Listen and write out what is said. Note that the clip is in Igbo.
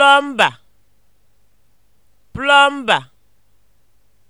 plọmba plọmba